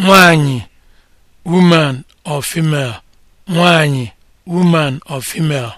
nwanyị woman of female nwanyị woman of female